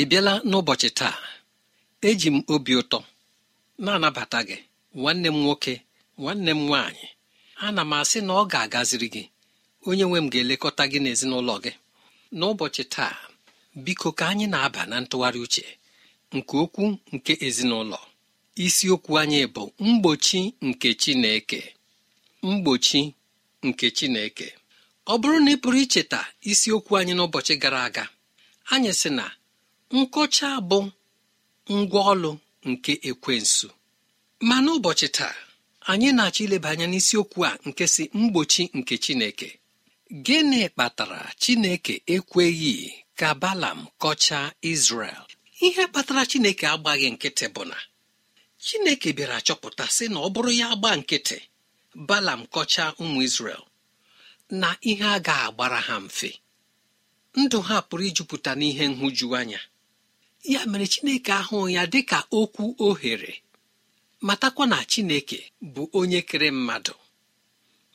ị bịala n'ụbọchị taa eji m obi ụtọ na-anabata gị nwanne m nwoke nwanne m nwaanyị ana m asị na ọ ga-agaziri gị onye nwe m ga-elekọta gị n'ezinụlọ gị n'ụbọchị taa biko ka anyị na-aba na ntụgharị uche nke okwu nke ezinụlọ isiokwu anyị bụ mgbochi nke Chineke mgbochi nke Chineke ọ bụrụ na ị pụrụ icheta isiokwu anyị n'ụbọchị gara aga anyị sị na nkọcha bụ ngwaọlụ nke ekwensu ma n'ụbọchị taa anyị na-achọ ileba anya n'isiokwu a nke si mgbochi nke chineke gịnị kpatara chineke ekweghị ka balam kọchaa izrel ihe kpatara chineke agbaghị nkịtị bụ na chineke bịara chọpụta sị na ọ bụrụ ya gbaa nkịtị balam kọchaa ụmụ izrel na ihe a ga agbara ha mfe ndụ ha pụrụ ijupụta n'ihe nhụjuanya ya mere chineke ahụ ya ka okwu ohere matakwa na chineke bụ onye kere mmadụ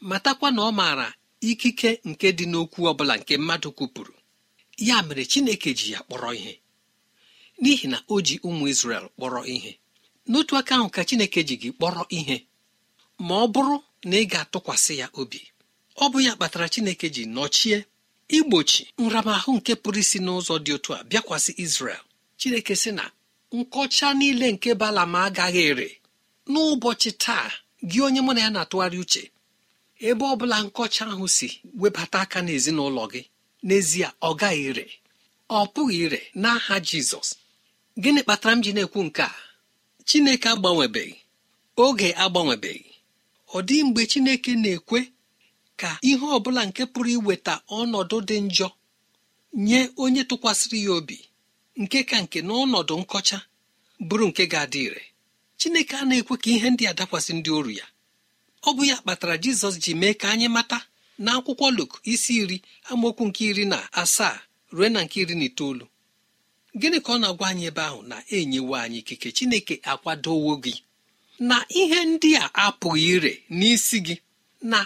matakwa na ọ maara ikike nke dị n'okwu ọbụla nke mmadụ kwupụrụ ya mere chineke ji ya kpọrọ ihe n'ihi na o ji ụmụ isrel kpọrọ ihe n'otu aka ahụ ka chineke ji gị kpọrọ ihe ma ọ bụrụ na ị ga-atụkwasị ya obi ọ bụ ya kpatara chineke ji nọchie igbochi nramahụ nke pụrụ isi n'ụzọ dị otu a bịakwasị isrel chineke sị na nkọcha niile nke balam agaghị ere n'ụbọchị taa gị onye mụ na ya na-atụgharị uche ebe ọ bụla nkọcha ahụ si webata aka n'ezinụlọ gị n'ezie ọ gaghị ire ọ pụghị ire n'aha jizọs gịnị kpatara m ji na-ekwu nke a chineke agbanwebeghị oge agbanwebeghị ọ dị mgbe chineke na-ekwe ka ihe ọ bụla nke pụrụ iweta ọnọdụ dị njọ nye onye tụkwasịrị ya obi nke ka nke n'ọnọdụ nkọcha bụrụ nke ga-adị ire chineke a na-ekwe ka ihe ndị a dakwasị ndị oru ya ọ bụ ya kpatara jizọs ji mee ka anyị mata na akwụkwọ luk isi iri amaokwu nke iri na asaa ruo na nke iri na itoolu gịnị ka ọ na-agwa anyị ebe ahụ na enyewo anyị ikike chineke akwadowo gị na ihe ndị a apụghị ire n'isi gị na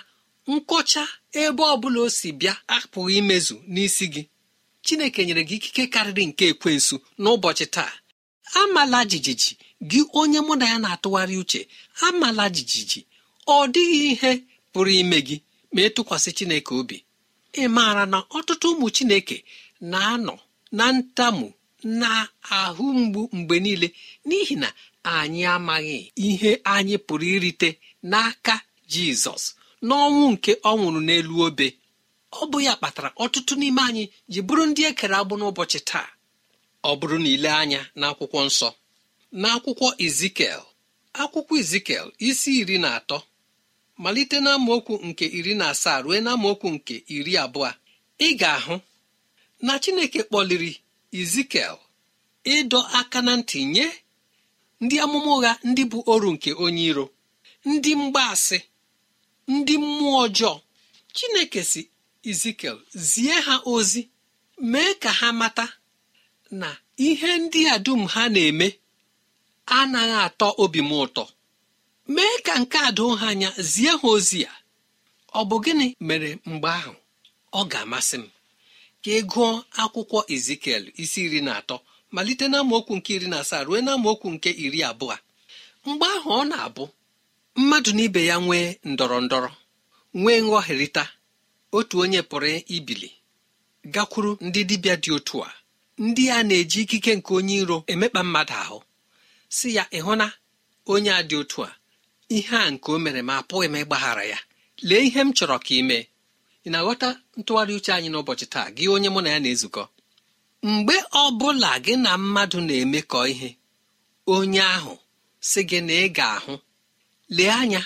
nkọcha ebe ọ bụla o si bịa apụghị imezu n'isi gị chineke nyere gị ikike karịrị nke ekwensu n'ụbọchị taa amala jijiji gị onye mụ na ya na-atụgharị uche amala jijiji ọ dịghị ihe pụrụ ime gị ma ị e tụkwasị chineke obi ị maara na ọtụtụ ụmụ chineke na-anọ na ntamu na ahụ mgbu mgbe niile n'ihi na anyị amaghị ihe anyị pụrụ irite n'aka jizọs n'ọnwụ nke ọ nwụrụ n'elu obe ọ bụ ya kpatara ọtụtụ n'ime anyị ji bụrụ ndị e kere agbụ n'ụbọchị taa ọ bụrụ na ile anya n'akwụkwọ nsọ n'akwụkwọ izikel akwụkwọ izikel isi iri na atọ malite na amaokwu nke iri na asaa ruo na okwu nke iri abụọ ị ga-ahụ na chineke kpọliri izikel ịdọ aka na ntị nye ndị amụma ụgha ndị bụ oru nke onye iro ndị mgbaasị ndị mmụọ ọjọọ chineke si Ezekiel zie ha ozi mee ka ha mata na ihe ndị a dum ha na-eme anaghị atọ obi m ụtọ mee ka nke a doo ha anya zie ha ozi ya ọ bụ gịnị mere mgbe ahụ ọ ga-amasị m ka ị gụọ akwụkwọ Ezekiel isi iri na atọ malite na nke iri na asaa ruo na nke iri abụọ mgbe ahụ ọ na-abụ mmadụ na ibe ya nwee ndọrọ ndọrọ nwee nghọherịta otu onye pụrụ ibili gakwuru ndị dibịa dị otu a ndị a na-eji ikike nke onye iro emekpa mmadụ ahụ si ya ịhụ na onye a dị otu a ihe a nke o mere ma apụghị m ịgbaghara ya lee ihe m chọrọ ka ị mee ị na-aghọta ntụgharị uche anyị n'ụbọchị taa gị onye mụ na ya na-ezukọ mgbe ọ bụla gị na mmadụ na-emekọ ihe onye ahụ si gị na ị ga-ahụ lee anya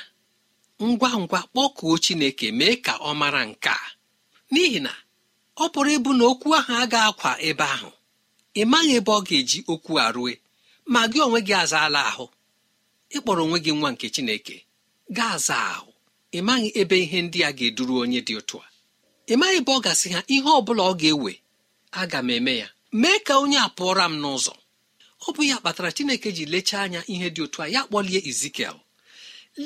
ngwa ngwa kpọkuo chineke mee ka ọ mara nke a n'ihi na ọ pụrụ ịbụ na okwu ahụ agaghị akwa ebe ahụ ị maghị ebe ọ ga-eji okwu a rue ma gị onwe gị azaala ahụ ịkpọrọ onwe gị nwa nke chineke gaa aza ahụ ị maghị ebe ihe ndị a ga-eduru onye dị otu a ị maghị ebe ọ gasị ha ihe ọ bụla ọ ga-ewe aga m eme ya mee ka onye a pụọra m n'ụzọ ọ bụ ya kpatara chineke ji lechaa anya ihe dị otu a ya kpọlie izikiel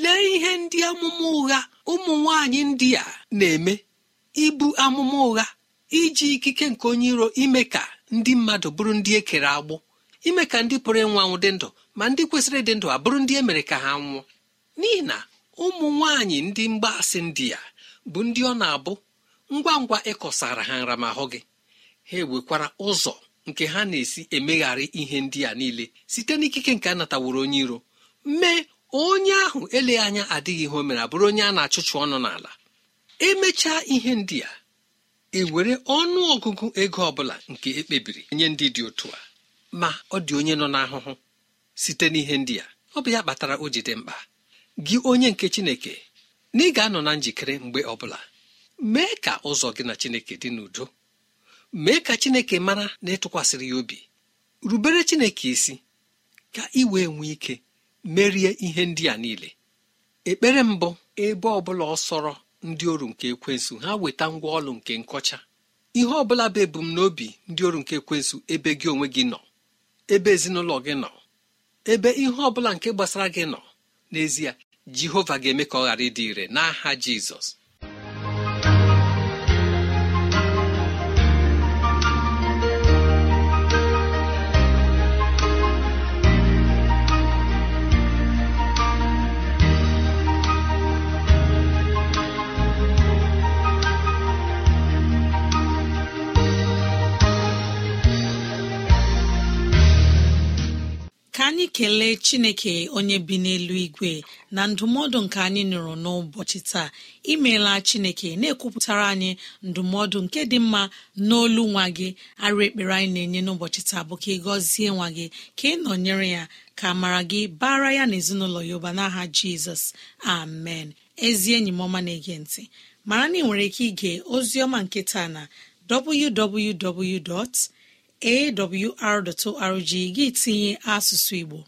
lee ihe ndị amụma ụgha ụmụ nwanyị ndị a na-eme ibu amụma ụgha iji ikike nke onye iro ime ka ndị mmadụ bụrụ ndị e kere agbụ ime ka ndị pụrụ ịnwa anwụ dị ndụ ma ndị kwesịrị ịdị ndụ abụrụ ndị e mere ka ha nwụọ n'ihi na ụmụ nwaanyị ndị mgbaasị ndị a bụ ndị ọ na-abụ ngwa ngwa ịkọsara ha nramahụ gị ha ewekwara ụzọ nke ha na-esi emegharị ihe ndị a niile site n'ikike nke a nataworo onye iro mee onye ahụ eleghị anya adịghị ihe o mere abụrụ onye a na-achụchụ ọnụ n'ala emechaa ihe ndị a ewere ọnụ ọgụgụ ego ọbụla nke ekpebiri nye ndị dị otu a ma ọ dị onye nọ n'ahụhụ site n'ihe ndị a ọ bụ ya kpatara o ji dị mkpa gị onye nke chineke na ị ga-anọ na njikere mgbe ọbụla mee ka ụzọ gị na chineke dị n'udo mee ka chineke mara na ịtụkwasịrị ya obi rubere chineke isi ka ị wee nwee ike merie ihe ndị a niile ekpere mbụ ebe ọbụla ọsọrọ ndị oru nke ekwensụ ha weta ngwa ọlụ nke nkọcha ihe ọbụla bụ ebumnobi ndị oru nke ekwensụ ebe gị onwe gị nọ ebe ezinụlọ gị nọ ebe ihe ọbụla nke gbasara gị nọ n'ezie jehova ga-eme ka ọ ghara ịdị ire n'aha jizọs anyị kelee chineke onye bi n'elu igwe na ndụmọdụ nke anyị nụrụ n'ụbọchị taa imeela chineke na-ekwupụtara anyị ndụmọdụ nke dị mma n'olu nwa gị arụ ekpere anyị na-enye n'ụbọchị taa bụ ka ị gọzie nwa gị ka ị nọnyere ya ka mara gị bara ya na ezinụlọ ya ụba n'aha jizọs amen ezi enyi m ọma na-ege ntị mara na ị nwere ike ige ozi ọma nke taa na www. awr.org gị tinye asụsụ Igbo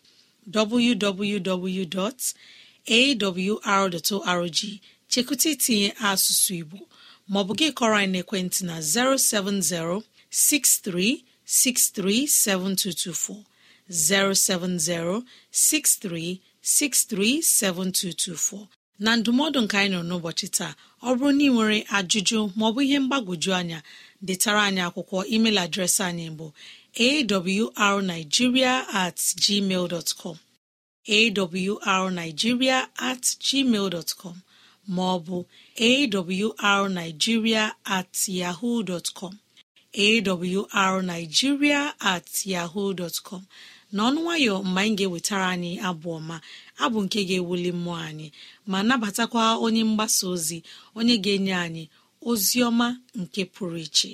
www.awr.org chekụta itinye asụsụ Igbo maọbụ gị kọrọ anyị naekwentị na 070 6363 7224 070 6363 7224 na ndụmọdụ nke anyị nọ n'ụbọchị taa ọ bụrụ na ị nwere ajụjụ maọbụ ihe mgbagwoju anya detara anyị akwụkwọ email adreesị anyị bụ arigiria at gmail dot com awrnigeria at gmail com ma ọ bụ awrnigeria at yahoo dot com awrnigeria at yahoo dot com n'ọnụ nwayọ mgbe anyị ga-ewetara anyị abụ ọma abụ nke ga-ewuli mmụọ anyị ma nabatakwa onye mgbasa ozi onye ga-enye anyị ozi ọma nke pụrụ iche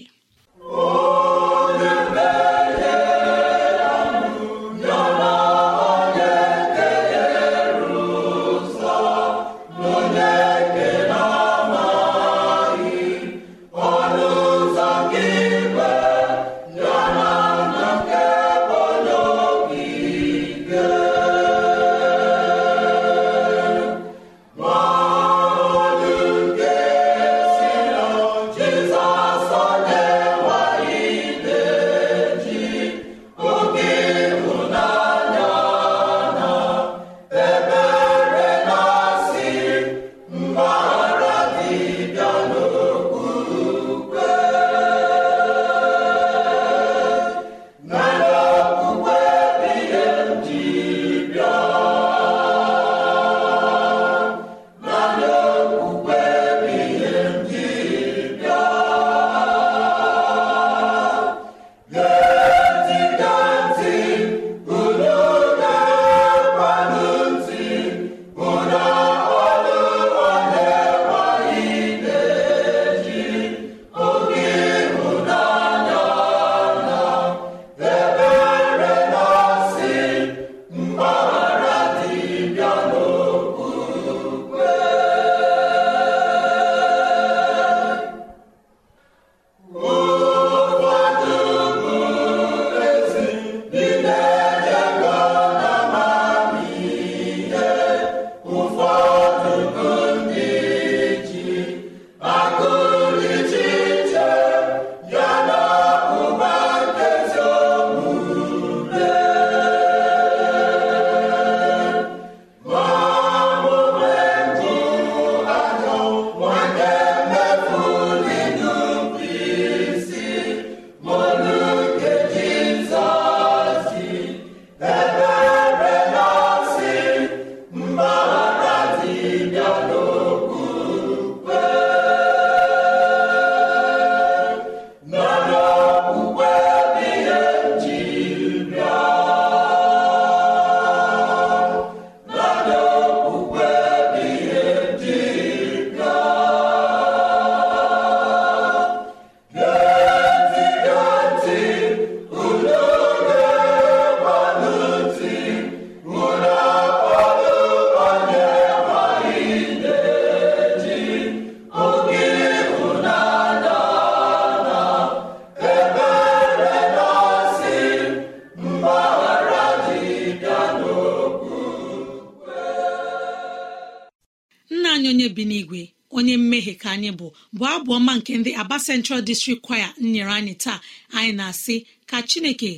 bụ abụ ọma nke ndị aba central district choir nyere anyị taa anyị na-asị ka chineke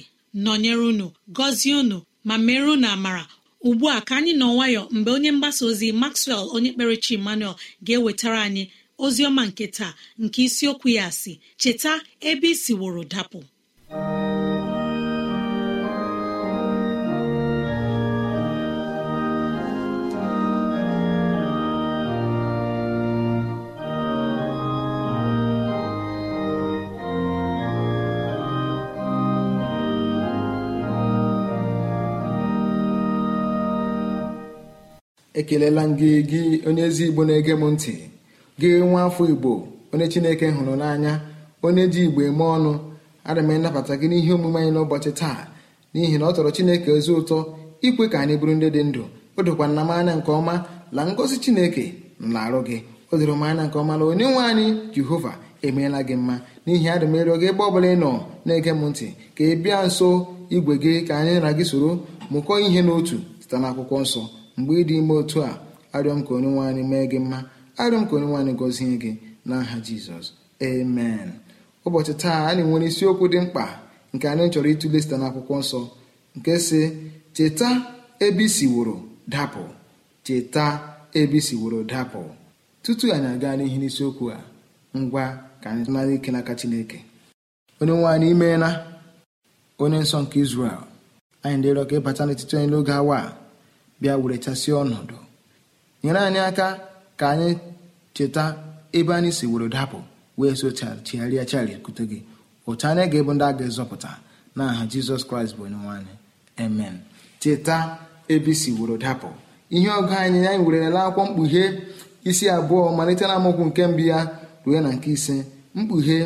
nọnyere unu gọzie unu ma mere unu amara ugbu a ka anyị nọ nwayọ mgbe onye mgbasa ozi maxwell onye kpere chi emmanuel ga-ewetara anyị ozi ọma nke taa nke isiokwu ya asị cheta ebe isi wụrụ dapụ ekelela gị gị onye ezi igbo na-ege m ntị gị nwa afọ igbo onye chineke hụrụ n'anya onye ji igbo eme ọnụ ana m gị n'ihe omume anyị n'ụbọchị taa n'ihi na ọ tọrọ chineke ezi ụtọ ikwe ka anyị bụrụ ndị dị ndụ o dokwa nna m anya nke ọma la ngọzi chineke na-arụ gị o doro m anya nke ọma na onye nwe anyị jehova emeela gị mma n'ihi adị m ịrịọ gị ebe ọ bụla ị nọ na-ege m ntị ka ị bịa nso igwe gị ka anyị na gị soro mụkọọ ihe n'otu site n'akwụkwọ nsọ mgbe ị dị ime otu a arịọ m ka onye nwe anyị mee gị mma arịọ m ka onye nwe anyị gọzie gị n'aha jizọs amen ụbọchị taa anyị nwere isiokwu dị mkpa nke anyị chọrọ ịtụle site akwụkwọ nsọ nke si cheta ebe isiworo dapụ cheta ebe isiworo dapụ tutu anyị aga n'ihi n'isiokwu a ngwa ka anyị nara ike n'aka chineke onye nwe anyị imeela onye nsọ nke israel anyị dịrọ ka ịbata n'etiti onye n'oge awa a bịa werechasịa ọnọdụ nyere anyị aka ka anyị cheta ebe anyị si were dapụ wee so chigharịa kute gị otu anyị ga-ebu ndị a ga-ezọpụta n'aha aha jizọs kraịst bụ onye nwanyị amen cheta ebe isi were dapụ ihe ọgụ anyị anyị werela akwụkwọ mkpughe isi abụọ malite na nke mbụ ya ruo na nke ise mkpughe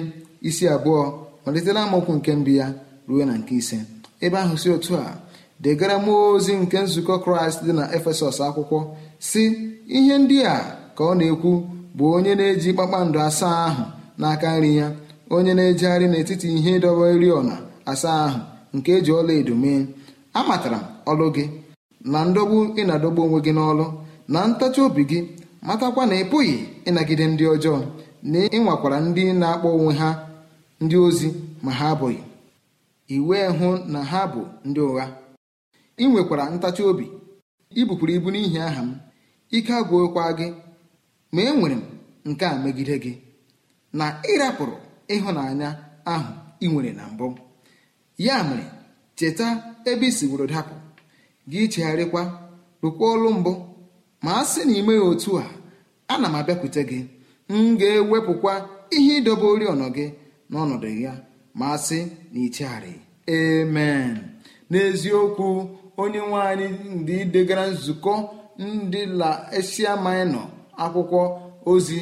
isi abụọ malite na nke mbụ ya ruo na nke ise ebe ahụ si otu a degara m ozi nke nzukọ kraịst dị na efesọs akwụkwọ si ihe ndị a ka ọ na-ekwu bụ onye na-eji kpakpando asaa ahụ n'aka nri ya onye na-ejegharị n'etiti ihe ịdọba oriọna asaa ahụ nke eji ọla edo mee amatara ọlụ gị na ndọgbu ị na-adọgbu onwe gị n'ọlụ na ntachi obi gị matakwa na ị pụghị ịnagide ndị ọjọọ na ịnwakwara ndị na-akpọ onwe ha ndị ozi ma ha abụghị iwee hụ na ha bụ ndị ụgha ị nwekwara ntachi obi i bukwuru ibu n'ihi aha m ike agwụkwa gị ma enwere m nke a megide gị na ịrapụrụ ịhụnanya ahụ ị nwere na mbụ ya mere cheta ebe i siworo dapụ gị chegharịkwa rụkwa ọlụ mbụ ma a sị na ime ya otu a ana m abịakwute gị m ga-ewepụkwa ihe ịdọba oriọna gị n'ọnọdụ ya ma a sị na ichegharị amen n'eziokwu onye nwe anyị ndị degara nzukọ ndị la ama ịnọ akwụkwọ ozi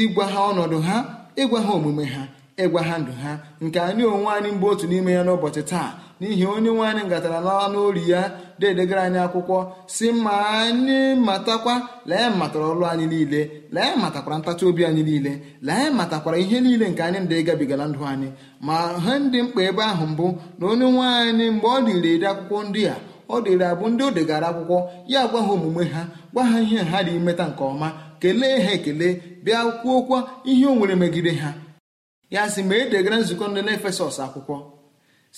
ịgwa ha ọnọdụ ha ịgwa ha omume ha ịgwa ha ndụ ha nke anyị onwe anyị mbụ otu n'ime ya n'ụbọchị taa n'ihi onye nwe anyị ngatara n'ọnụ ori ya dedegara anyị akwụkwọ si ma anyị matakwa lee matara ọlụ anyị niile lee matakwara ntachi obi anyị niile lee matakwara ihe niile nke anyị ndị gabigala ndụ anyị ma ha ndị mkpa ebe ahụ mbụ na onye nwe anyị mgbe ọ dịrị ede akwụkwọ ndị a ọ dịrị abụ ndị o degara akwụkwọ ya gwa ha omume ha gwa ha ihe ha dị imeta nke ọma kelee ha ekele bịa kwuokwa ihe o nwere megide ha ya sị ma e degara nzukọ ndị n'efesọs akwụkwọ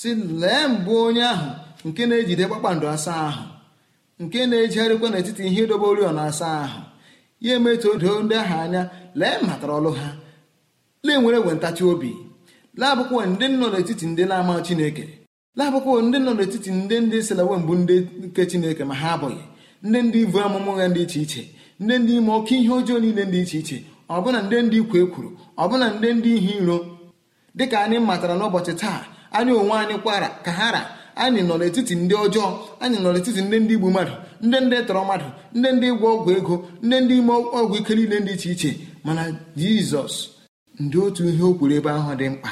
si lee mbụ onye ahụ nke na-ejide kpakpando asaa ahụ nke na-ejigharịkwa n'etiti ihe dobe oriọna asaa ahụ ya emetụ odo ndị ahụ anya lee matara ọlụ ha lee nwere nwe ntachi obi laabụkwa ndị nọ n'etiti ndị na-ama Chineke labụkwa ndị nọ n'etiti ndị ndị selawe mbụ ndị nke chineke ma ha abụghị ndị ndị ibu amụmụ ya dị iche iche ndị ndị ime oke ihe ọjọọ niile dị iche iche ọbụna ndị ndị ikwu kwuru ọbụna ndị ndị ihe iro dịka anyị matara n'ụbọchị taa anyị onwe anyị kwara ka ha ra anyị nọ n'etiti ndị ọjọọ anyị nọ n'etiti ndị ndị igbu mmadụ ndị ndị tọrọ mmadụ ndị ndị ịgwọ ọgwụ ego ndị ndị ime ọgwụ ike niile dị iche iche mana jizọs ndị otu ihe o kwuru ebe ahụ dị mkpa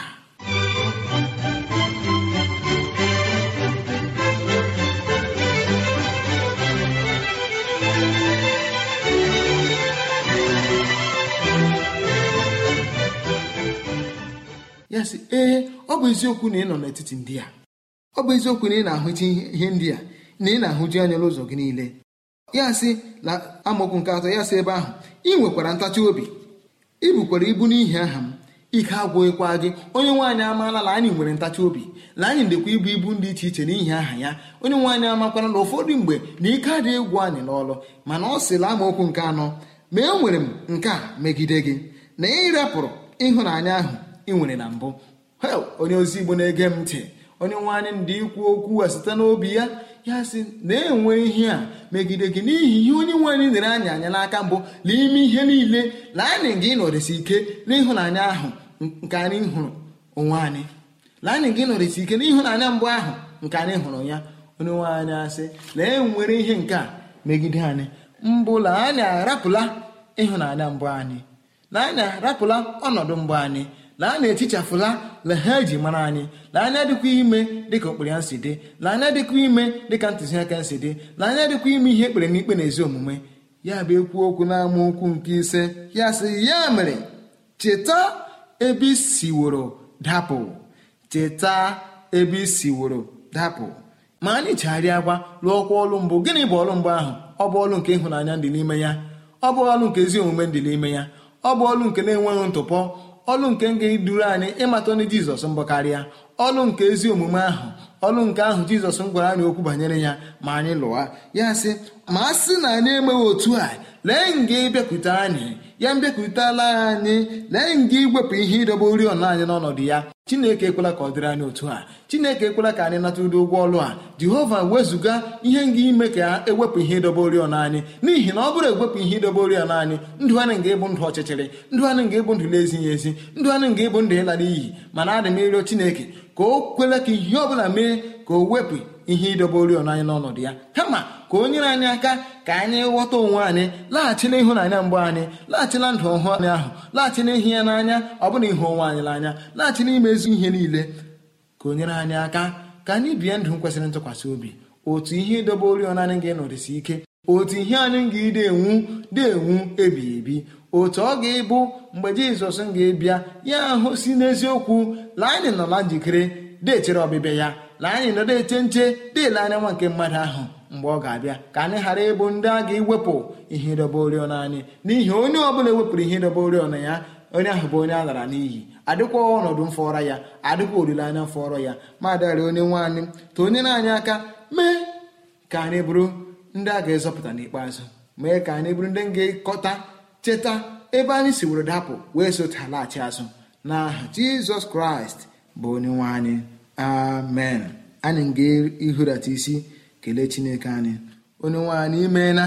ya sị ee ọ bụ eziokwu na ị nọ n'etiti ndị a ọ bụ eziokwu na ị na ahụcha ihe ndị a na ị na-ahụji anya n'ụzọ gị niile ya sị na amokwu nke atọ ya sị ebe ahụ ị nwekwara ntachi obi ị ibu n'ihi aha m ike agwụghịkwa gị onye nwaanyị amaala na anyị nwere ntachi obi na anyị ndekwa ibu ibu ndị iche iche n'ihi aha ya onye nwaanyị amakwara na ụfọdụ mgbe na ike adịghị egwu anyị n'ọlụ mana ọ sịla amaokwu nke anọ ma e nwere m nke a megide gị na ị rapụrụ ịhụnanya ahụ ị nwere na mbụ hel onye ozi igbo na-ege m ntị onye nwe anyị ndị ikwu okwu a site n'obi ya ya sị na-enwe ihe a megide gị n'ihi ihe onye nwe anyị nyere anyị anya n'aka mbụ n'ime ihe niile na anyị gị nọrịsị ike n'ịhụnanya ahụ nke anyị hụrụ onwe anyị laanị gị nọrịsị ike n'ịhụnanya mbụ ahụ nke anyị hụrụ ya onye nwe anyị asị na-enwere ihe nke a megide anyị mbụ na anyị arapụla ịhụnanya mbụ anyị na anyị arapụla ọnọdụ mbụ anyị laa na echichafụla na ha eji mara anyị lee anya dịkwa ime dịka okpere ya si dị lee anya dịkwa ime dịka ntụziaka si dị lee anya dịkwa ime ihe ekpere n'ikpe na ezi omume ya bụ ekwu okwu n'ama okwu nke ise ya sị ya mere cheta ebe siworo dapụ cheta ebe isiworo dapụ ma anyị chegharịa gwa lụọkwa ọlụ mbụ gịnị bụ ọlụ mbụ ahụ ọ bụ ọlụ nke ịhụnanya dị n'ime ya ọ bụ ọlụ nke ezi omume dị n'ime ya ọ bụ ọlụ nke na-enweghị ntụpọ ọlụ nke ga-eduru anyị ịmata ọnụ jizọs mbụ karịa ọlụ nke ezi omume ahụ ọlụ nke ahụ jizọs gwara anyị okwu banyere ya ma anyị lụwa ya sị ma a sị na anyị enweghị otu a lee nga ịbịakwute anyị ya mbịakwutela anyị lee nga iwepụ ihe ịdọba oriọna anyị n'ọnọdụ ya chineke ekwela ka ọ dịrị anyị otu a chineke ekwela ka anyị nata ụdị ụgwọ ọrụ a jehova wezụga ihe nga ime ka ewepụ ihe ịdọba oriọna anyị n'ihi na ọ bụrụ ewepụ ihe ịdọba oriọna anyị ndụ anyị nga ịbụ ndụ ọchịchịrị ndụ anyị nga ịbụ ndụ na-ezighị ezi ndụ anyị nga ịbụ ndụ ịla n'iyi mana adị m ịrịọ chineke ka o kwela ka ihe ọ bụla mee ka o wepụ ihe ịdobe oriọna anyị n'ọnọdụ ya kama ka o nyere anyị aka ka anyị ghọta onwe anyị laghachi na ịhụnanya mbụ anyị laghachi na ndụ ọhụụ anyị ahụ laghachi n'ihi ya n'anya ọ bụna ịhụ onwe anyị n'anya laghachi n'ime ezi ihe niile ka o nyere anyị aka ka anyị bie ndụ kwesịrị ntụkwasị obi otu ihe ịdobe oriọna anyị ga-enọdụsi ike otu ihe anyị ga-ide enwu dị enwu ebighị ebi otu ọ ga-ịbụ mgbe jizọs m ga-ebịa ya ahụ si n'eziokwu la anyị nọ na njikere dechere ọbịbịa ya na anyị nọdụ eche nche dịle anya nwa nke mmadụ ahụ mgbe ọ ga-abịa ka anyị ghara ịbụ ndị a ga-ewepụ ihe ịdọba oriọna anyị n'ihi onye ọbụla ewepụrụ ihe ịdọba oriọna ya onye ahụ bụ onye a lara n'iyi adịkwa ọnọdụ mfọrọ ya adịkwa olileanya mfọrọ ya ma dịgharị onye nwaanyị ta onye na-anyị aka mee ka anyị bụrụ ndị a ga-ezọpụta n'ikpeazụ mee ka anyị bụrụ ndị ga-ekọta cheta ebe anyị si were dapụ wee sotalaghachi azụ n'aha Jizọs Kraịst bụ onye nwe anyị amen anyị ga-ihurata isi kelee chineke anyị onye nwe anyị imeela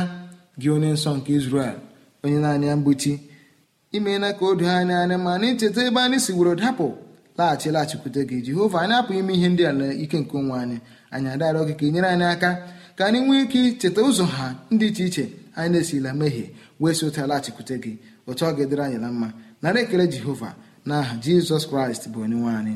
gị onye nsọ nke Izrel onye na-anya mgbuchi imeela ka o doo anyị anya ma na cheta ebe anyị sigboro dapụ laghachi laghachikwute gị Jehova anyị apụghị ime ihe ndị a na ike nke onwe anyị anyị adarọ gị ka ị nyere anyị aka ka anyị nwee ike icheta ụzọ ha ndị iche iche anyị na-esila mehie wee si ụta laghachikwute gị otu ọ ga-edere anyị na mma nara ekele Jehova na aha Jizọs Kraịst bụ onye nwe anyị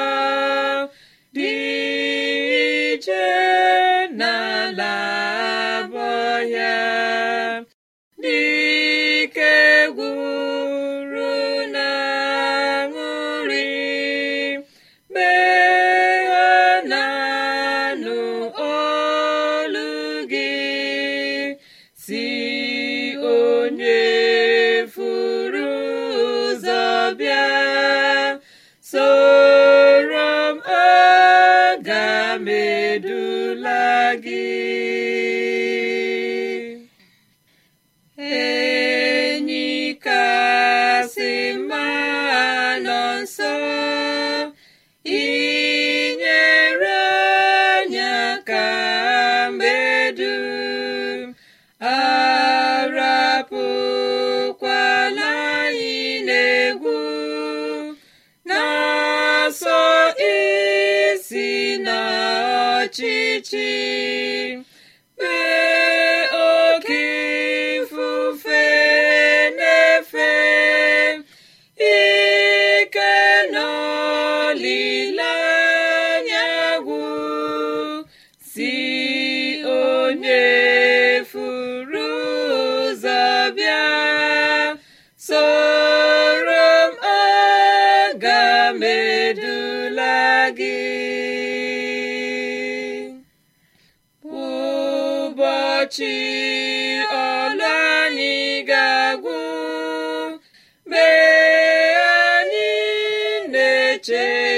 eche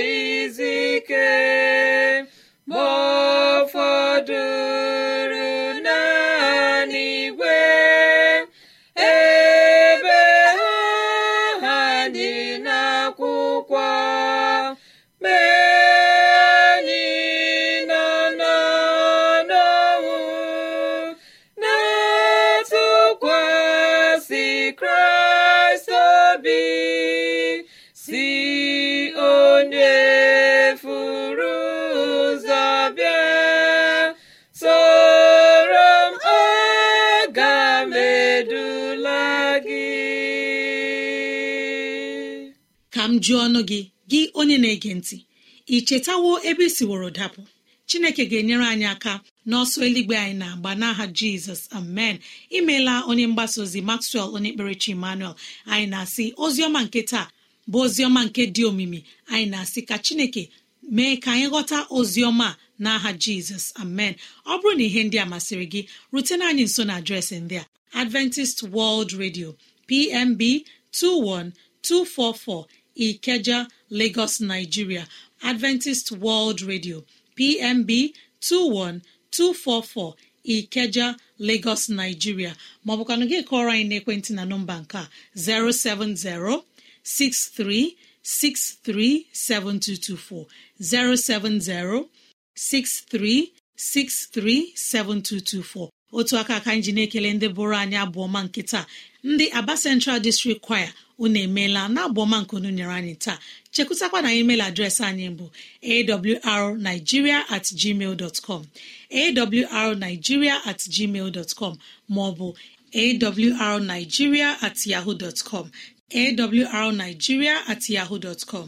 uju ọnụ gị gị onye na-ege ntị ị chetawo ebe isiworo dapụ chineke ga-enyere anyị aka n'ọsọ eluigwe anyị na-agba n'aha jizọs amen imeela onye mgbasa ozi maxwell onye kperechi emmanuel anyị na-asị oziọma nke taa bụ oziọma nke dị omimi anyị na-asị ka chineke mee ka anyị ghọta oziọma n'aha jizọs amen ọ bụrụ na ihe ndị a masịrị gị rutena anyị nso na adreesị ndị a adventist world radio pmb 244. ikeja lagos nigeria adventist world radio pmb 21244 ikeja lagos nigeria maọbụkwanụ gị kọọrọ anyị naekwentị na nọmba nke 070 -63 -7224. 070 -63 -7224. otu aka aka anyị na-ekele ndị bụrụ anyị abụọma nke taa ndị aba central district choir unu emeela na abụọma nke unu nyere anyị taa chekwụtakwa na email adreesị anyị bụ awrnigeria at gmail dot com awrnigeria at com maọbụ awrnigeria at yahoo dot com awrnigeria at yahoo com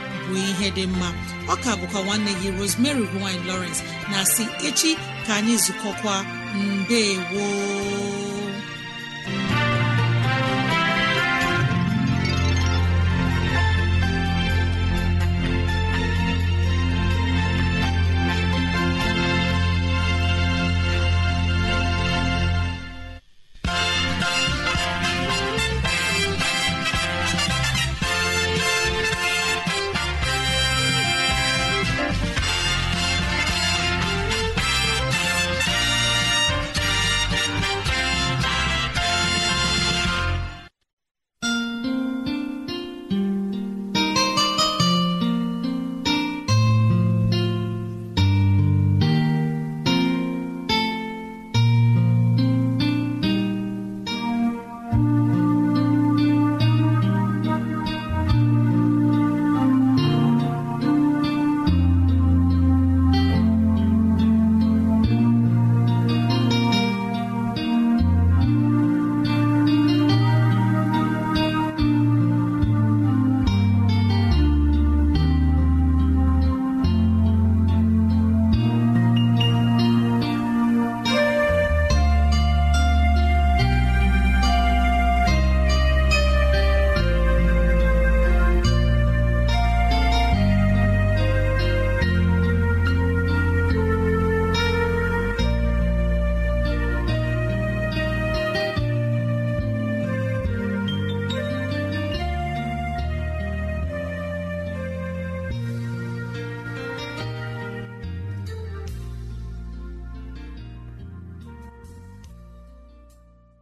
bụ ihe dị mma ọka bụkwa nwanne gị Rosemary gine lowrence na si echi ka anyị zukọkwa mbe woo